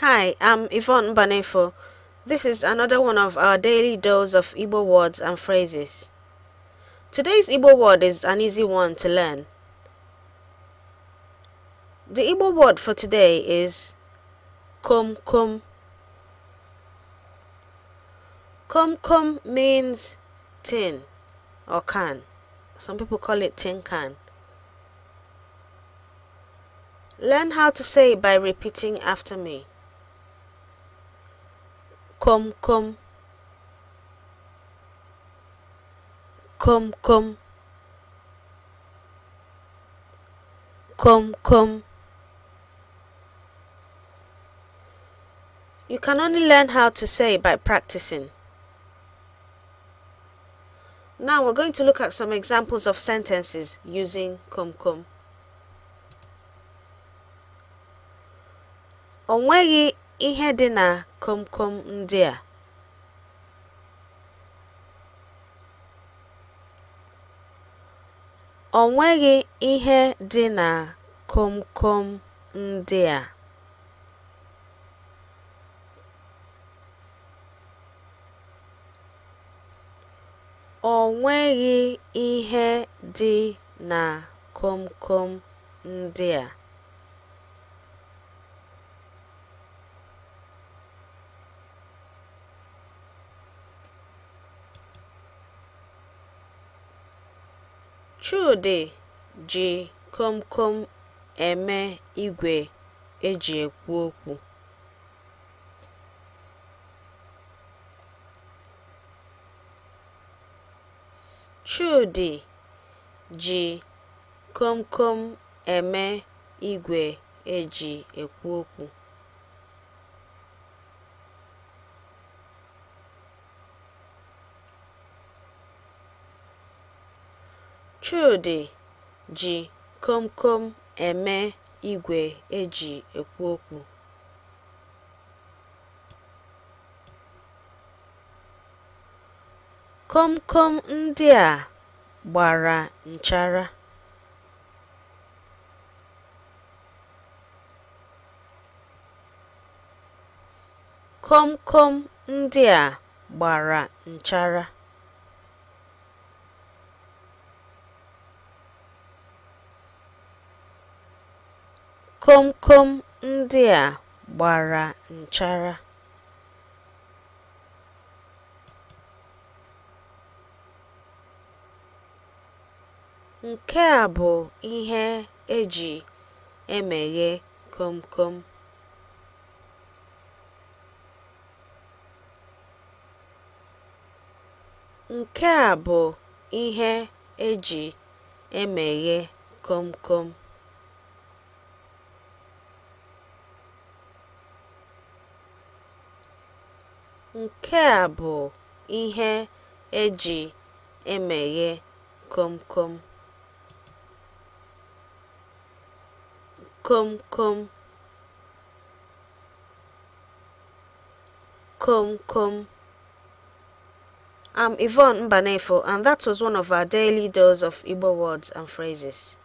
Hi, I'm Yvonne Banefo. This is another one of our daily dose of Igbo words and phrases. Today's Igbo word is an easy one to learn. The Igbo word for today is kum kum. Kum kum means tin or can. Some people call it tin can. Learn how to say it by repeating after me come come come come come come you can only learn how to say by practicing now we're going to look at some examples of sentences using come come. ihe dị komkom ndị a ihe dị na komkom ndị a ọ nweghị ihe dị na komkom ndị a chudi ji komkom eme ji komkom eme igwe eji ekwu okwu. chudi ji komkom eme igwe eji ekwu okwu. Komkom ndị a gbara Komkom ndị a gbara nchara. Komkom ndị a gbara nchara. Nke a bụ ihe eji emeghe komkom. Nke e Nke a bụ ihe eji emeghe kom kom. kom kom kom kom I'm Yvonne Mbanefo and that was one of our daily dose of Igbo words and phrases.